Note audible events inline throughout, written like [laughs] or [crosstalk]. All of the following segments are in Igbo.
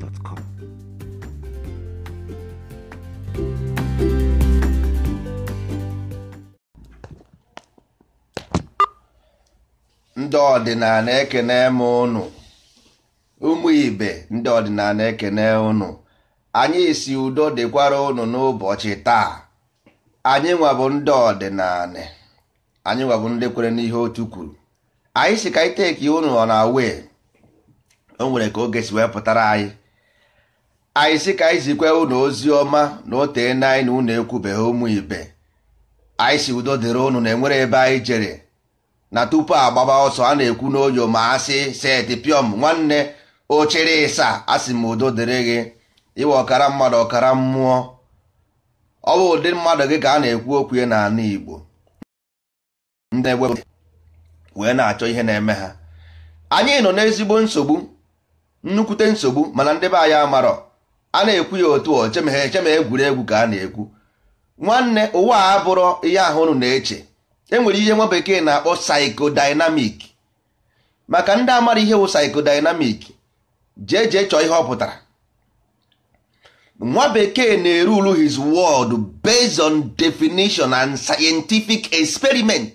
gmail.com. ndị ọdịnala ekene m ụnụ ụmụ ibe ndị ọdịnala ekene ụnụ anyị si udo dịkwara ụnụ n'ụbọchị taa anyị nwabụ ndị ọdịnala anyị nwabụ ndị kwere n'ihe otu kwuru anyị si ka iteki ụnụ ọ na wee o nwere ka oge si wee pụtara anyị anyị sị ka anyị zikwa unu ozi ọma na otee na anyị na unu ekwubeghị ụmụ ibe anyị si udo dịrị unu na enwere ebe anyị jere na tupu agbaba ọsọ a na-ekwu n'oyo ma asị seti nwanne ochiri ịsa asị m udo dịrị gị iwe ọkara mmadụ ọkara mmụọ ọ bụ ụdị mmadụ gị ka a na-ekwu okwu n'ala Igbo wee na-achọ ihe na-eme ha anyị nọ n'ezigbo nsogbu nnukwute nsogbu mana ndị be anyị amarọ a na-ekwu ya otu ọ cheme cheme egwuregwu ka a na-ekwu nwanne ụwa a bụrụ ihe ahụ unu na-eche enwere ihe nwa bekee na-akpọ psychodynamic maka ndị amara ihe wụ psychodynamic jee jee chọọ ihe ọ pụtara nwa bekee na-erulu his world based on definition and scientific experiment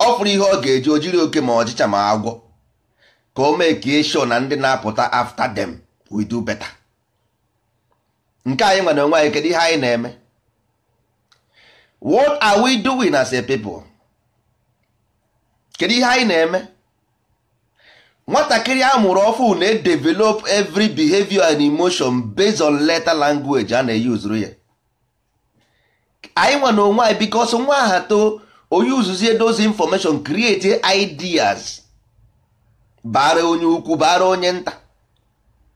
ọ fụrụ ihe ọ ga-eji ojiri oke ma ọchịcha ma agwọ ka o mee ka e na ndị na-apụta after them we do better nke anyị nwere onwe anyị kedu ihe anyị na-eme what are we doing as a people kedu ihe anyị na-eme nwatakịrị a mụrụ ọfụ na-edevelop every behavior and emotion based on letter language a na-eyuzuru ya anyị nwere onwe anyị bikos nwa aha too onye uzuzie those information create ideas bara onye ukwu bara onye nta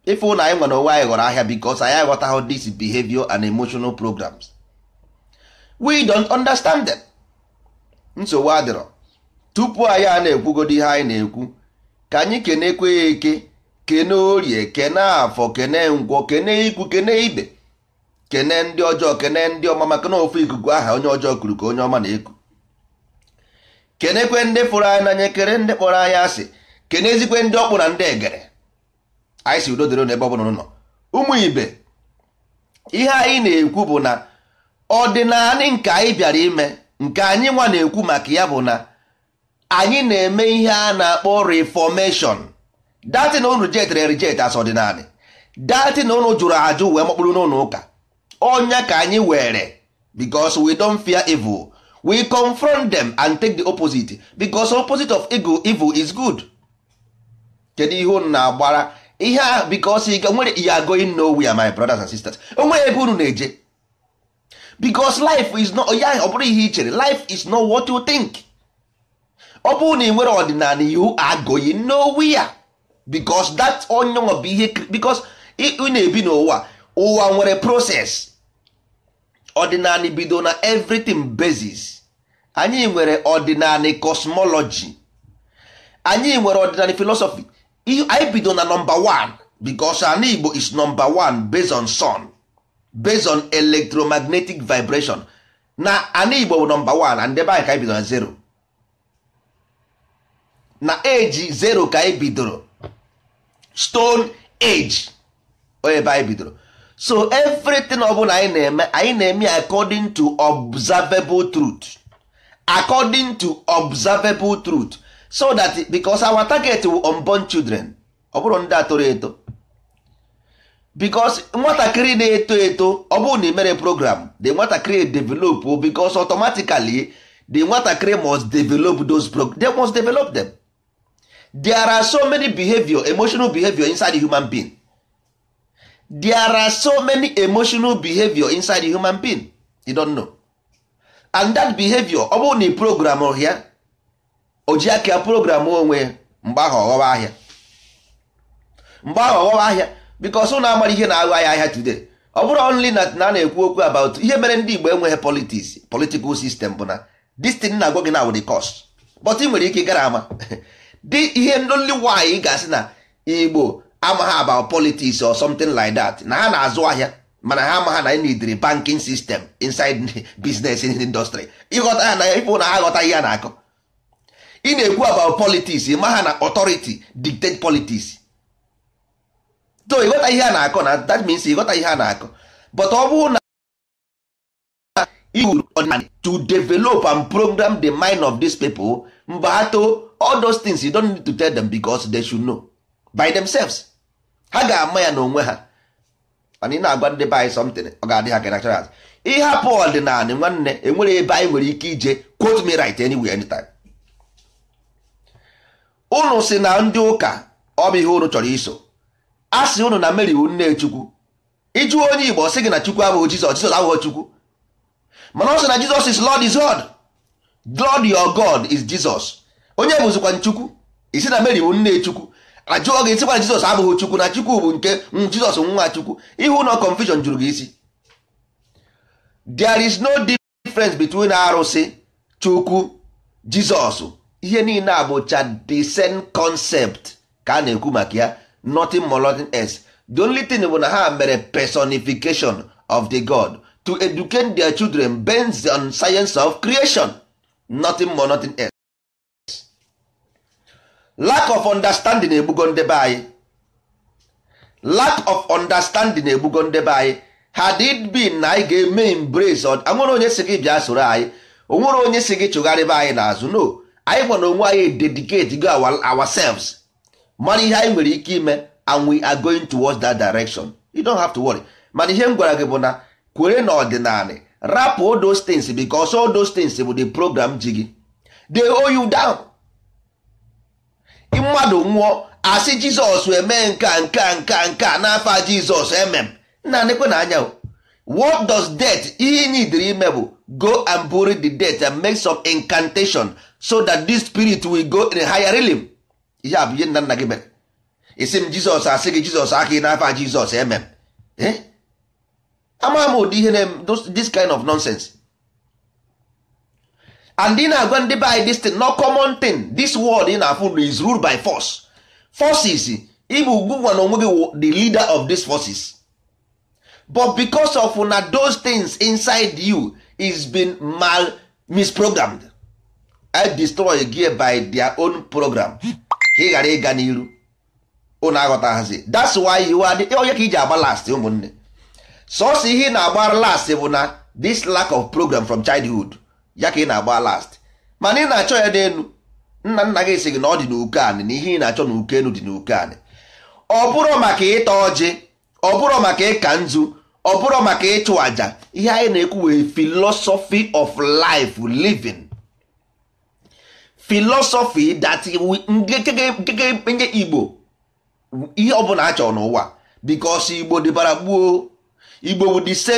ife na anyị nwere onwe anyị ghọrọ ahịa bikos anyị aghọtaghị this behavior and emotional programs we don't understand them. nsogbu adịrọ tupu anyị a na ekwugodo ihe anyị na-ekwu ka anyị kenekwe ya eke kene orie kene afọ kene ngwọ kene ikwu kene ibe kene ndị ọjọọ kene ndị ọma maka na ofu ikuku aha onye ọjọọ kuru ka onye ọma na-eku kenekwe ndị fụrụ anyị n'anya kere ndị kpọrọ anyị asị kenezikwe ndị ọkpụ na ndị egere anyị si udo dịrị n'ebe ọ bụla ụnụ nọ ụmụ ibe ihe anyị na-ekwu bụ na ọdịnala nke anyị bịara ime nke anyị nwa na-ekwu maka ya bụ na anyị na-eme ihe a na-akpọ reformation datị na ụnụ jet jetere rijet as ọdịnala datị na ụnụ jụrụ ajụ wee makpụrụ n'ụlọ ụka ọnya ka anyị were because we don't fear evil we confront them and take the opposite because opposite of evil is good kedu ihe ụnụ na-agbara ihe ahụ biko ọsọ ike nwere ihe agoghị nowhere my brothers and sisters o nwere ebe unu na-eje because life is not ya ọ bụrụ ihe i chere life is not what you think ọ bụrụ na ị nwere ọdịnala you are going nowhere because that onye bụ ihe because ị na-ebi n'ụwa ụwa nwere process ọdịnala bido na everything basis anyị nwere ọdịnala cosmology anyị nwere ọdịnala philosophy anyị bido na nọmba 1 because ana igbo is nọmba 1 based on sun based on electromagnetic vibration na ana igbo bụ nọmba 1 na ndebe anyị ka anyị bido na zero na eji zero ka anyị bidoro stone age ebe anyị bidoro so everything ọbụla anyị na-eme anyị na-eme according to observable truth according to observable truth so that because our target wu unborn children ọ bụrụ ndị a eto because nwatakịrị na-eto eto ọ bụrụ na ị mere program the nwatakịrị develop because automatically the nwatakịrị must develop those they must develop them there are so many behavior emotional behavior inside the human being there are so many emotional behavior inside the human being you don't know and that behavior ọ bụrụ na ị program ya oji aka ya program onwe ya mgbe ahụ ọghọba ahịa mgbe ahụ ọghọba ahịa because ụnụ amara ihe na-aghọ ahịa ahịa today ọ bụrụ only na a na-ekwu okwu about ihe mere ndị Igbo enweghị politics political sistem bụ na destin na agwọ gị na wụrụ cost but ị nwere ike gara ama [laughs] dị ihe ndoli nwaanyị ga-asị na Igbo amaghị about politics or something like that na ha na-azụ ahịa mana ha amaghị na e nidiri banking system inside [laughs] business industry ịghọta ya na ịfụ na ha aghọtaghị ya na-akọ ị na-ekwu about politics ma ha na authority dictate politics so ịghọta ihe a na-akọ na that means ịghọta ihe a na-akọ but ọ bụrụ na iwuru ọdịnala to develop and program the mind of these people mgbe ha too all those things you don't need to tell them because they should know by themselves ha ga-ama ya n'onwe ha mana ị na-agwa ndị be anyị something ọ ga-adị ha kenachara ịhapụ ọdịnala nwanne enwere ebe anyị nwere ike ije quote me right anywhere anytime unu si na ndị ụka ọ bụ ihe unu chọrọ iso a sị unu na Mary wu nne Chukwu ịjụ onye Igbo sị gị na Chukwu abụghị Jizọs Jizọs abụghị Chukwu mana ọ sị na Jizọs is Lord is God Lord your God is Jizọs onye bụzikwa Chukwu isi na meri wu nne Chukwu ajụọ gị sịkwa na Jizọs abụghị Chukwu na Chukwu bụ nke Jizọs nwa Chukwu ihe ụlọ confusion jụrụ gị isi there is no difference between arụsị Chukwu Jizọs ihe niile a bụ the same concept ka a na-ekwu maka ya nothing more nothing else the only thing bụ na ha mere personification of the god to educate their children based on science of creation nothing more nothing else. lack of understanding egbugo ndebe anyị lack of understanding egbugo ndebe anyị had it been na anyị ga-eme embrace anwere onye si gị bịa soro anyị onwere onye si gị chụgharịba anyị n'azụ no anyị nwa na onwe anyị dedicate go ourselves mara ihe anyị nwere ike ime eh, and we are going towards that direction you don't have to worry mana ihe m gwara gị bụ na kwere na ọdịnala rapụ all those things because all those things bụ the program ji gị they hold you down mmadụ nwụọ asị jizọs eme nka nka nka nka n'afọ jizọs emem nna nekwe na anya what does death ihe ị nidiri ime bụ go and bury the death and make some incantation so that this spirit will go in a higher realm ihe a bụ ihe nna nna gị mere isi m jizọs asị gị jizọs aka ị n'afa jizọs eme m eh? ama m ụdị ihe na this kind of nonsense and ị na-agwa ndị be this thing no common thing this world ị na-afụ is ruled by force forces Ibu ugwunwa na onwe gị the leader of these forces but because of na those things inside you is been mal misprogrammed I destroy gear by their own program ka ị ghara ịga n'iru unu aghọtaghazi that's why you are onye ka iji agba last ụmụnne sọsọ ihe ị na-agba last bụ na this lack of program from childhood ya ka ị na-agba last mana ị na-achọ ya n'elu nna nna gị si gị na ọ dị n'uke anị na ihe ị na-achọ n'uke enu dị n'uke anị ọ bụrụ maka ịta ọjị ọ bụrụ maka ịka nzu ọ bụrụ maka ịchụ àjà ihe anyị na-ekwu wee philosophy of life living filosofi dati nke igbo ihe ọbụla bụla chọrọ n'ụwa bikos igbo dịbara gbuo igbo bụ the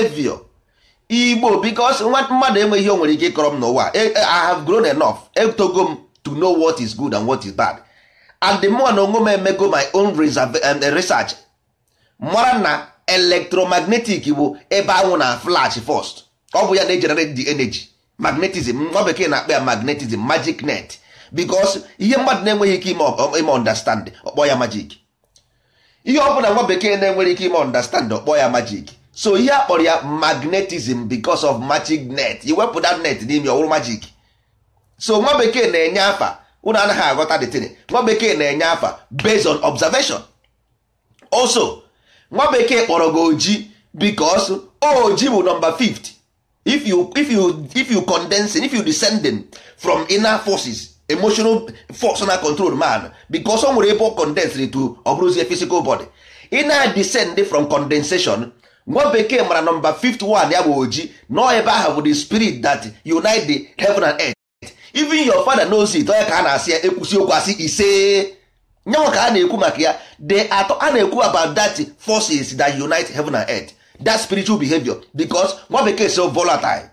igbo bikos mmadụ enweghị ihe nwere ike ịkọrọ m n'ụwa e, e, i have grown enough etogo m to know what is good and what is bad and the more na onwe m emego my own um, research mara na electromagnetic bụ ebe anwụ na flash first ọ bụ ya na-ejenerate the energy magnetism nwa bekee na-akpa ya magnetism magic net because ihe mmadụ na-enweghị ike ime understand ọkpọ ya majik ihe ọ bụla nwa bekee na-enwere ike ime understand ọkpọ ya majik so ihe akpọrọ ya magnetism because of magic net iwepụta net n'ime ọwụrụ majik so nwa bekee na-enye afa unu anaghị aghọta detin nwa bekee na-enye afa based on observation also nwa bekee kpọrọ gị oji because oji bụ nọmba fift if you if you if you condensing if you descending from inner forces emotional force na control man because o nwere ebe condensed to ọ physical body ị na-descend from condensation nwa bekee mara nọmba 51 ya bụ oji nọ ebe ahụ bụ the spirit that unite the heaven and earth even your father knows it onye ka a na-asị ya ekwusi okwu asị ise nyanwa ka a na-ekwu maka ya de atọ a na-ekwu about that forces that unite heaven and earth that spiritual behavior because nwa bekee so volatile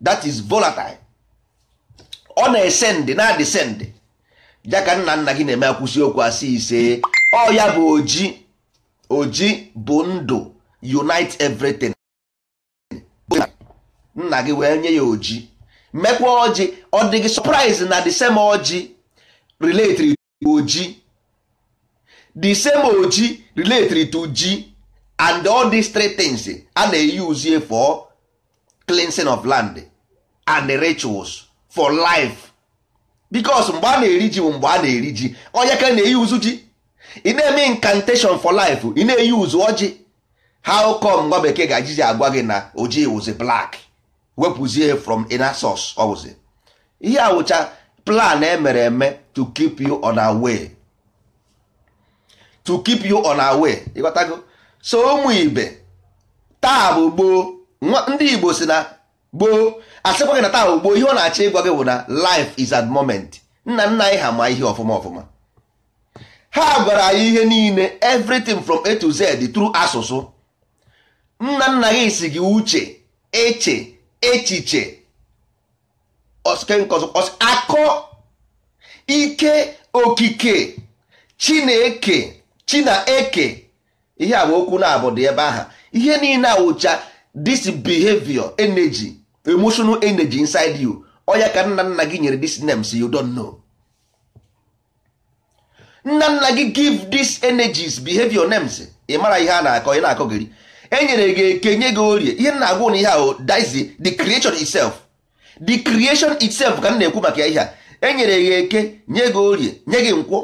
that is volatile ọ na-esendị na-adịsendị ya ka nna nna gị na-eme akwụsị okwu asị ise ọ ya bụ oji oji bụ ndụ unite everything nna gị wee nye ya oji mekwa ọjị ọ dịghị surprise na the same ọjị related to oji the same oji related to ji and all these three things a na-eyuzie for cleansing of land and the rituals for life because mgbe a na-eri ji bụ mgbe a na-eri ji onye ka na-eyi uzu ji ị na-eme incantation for life ị na-eyi uzu ọjị how come nwa bekee ga-aji agwa gị na ojii wụzi black wepụzie from inasos source ihe awụcha plan emere eme to keep you on our to keep you on our way so ụmụ ibe taa bụ gboo ndị igbo si na gboo asịkwa gị na taa ugbo ihe ọ na-achọ ịgwa gị bụ na life is at moment nna nna anyị ha ma ihe ọfụma ọfụma ha gwara anyị ihe niile everything from a to z tru asụsụ nna nna gị si gị uche eche echiche akọ ike okike chineke chinaeke ihe a bụ okwu na-abụ ebe aha ihe niile awụcha this behavior energy emotional energy inside you oya ka nna nna gị nyere this names you don't know nna nna gị give these energies behavior names ị mara ihe a na-akọ ị na-akọ enyere gị eke nye gị orie ihe nna agwụ na ihe ahụ dizi the creation itself the creation itself ka m na-ekwu maka ya ihe a enyere gị eke nye gị orie nye gị nkwọ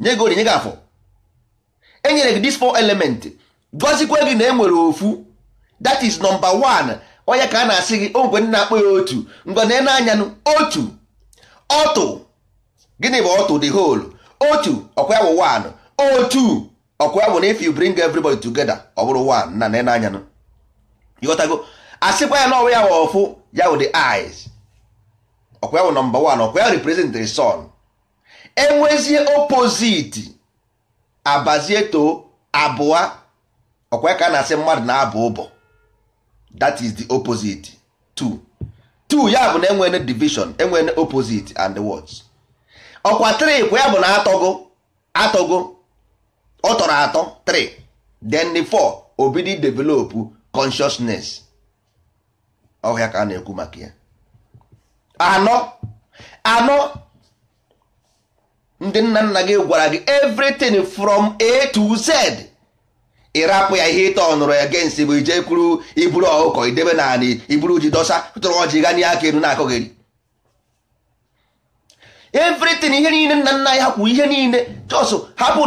nye gị orie nye gị afọ enyere gị this four element gọzikwa gị na enwere ofu that is number one onye ka a na-asị gị ogwe na akpọ ya otu ngwane n'anya otu ọtụ gịnị bụ ọtụ the whole otu ọkwa ya bụ one otu ọkwa ya bụ na if you bring everybody together ọ bụrụ one na na n'anya ịghọtago asịkwa ya na ọwa ya bụ ọfụ ya bụ the eyes ọkwa ya bụ number one ọkwa ya represent the sun enwezie opposite abazie too abụọ ọkwa ya ka a na-asị mmadụ na abụ ụbọ that is the opposite two two ya bụ na enwere division enwere opposite and words ọkwa 3 ya bụ na atọgo atọgo ọ tọrọ atọ 3 then the 4 obidi develop consciousness ọhịa ka a na-ekwu maka ya anọ anọ ndị nna nna gị gwara gị everything from A to Z ịrapụ ya ihe ịtọ nụrụ ya gensi bụ ije kwuru iburu ọkụkọ idebe naanị iburu ji dọsa tụrụ ọjị n'ihe aka elu na-akọgheri everything ihe niile nna nna ya kwuru ihe niile just hapụ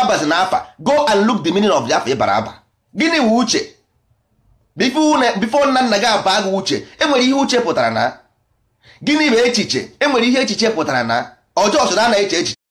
abazi na afa go and look the meaning of the afa ịbara aba gịnị wụ uche bifo nna nna gị aba gị uche enwere ihe uche pụtara na gịnị bụ echiche enwere ihe echiche pụtara na ọjọọ so na na-eche echiche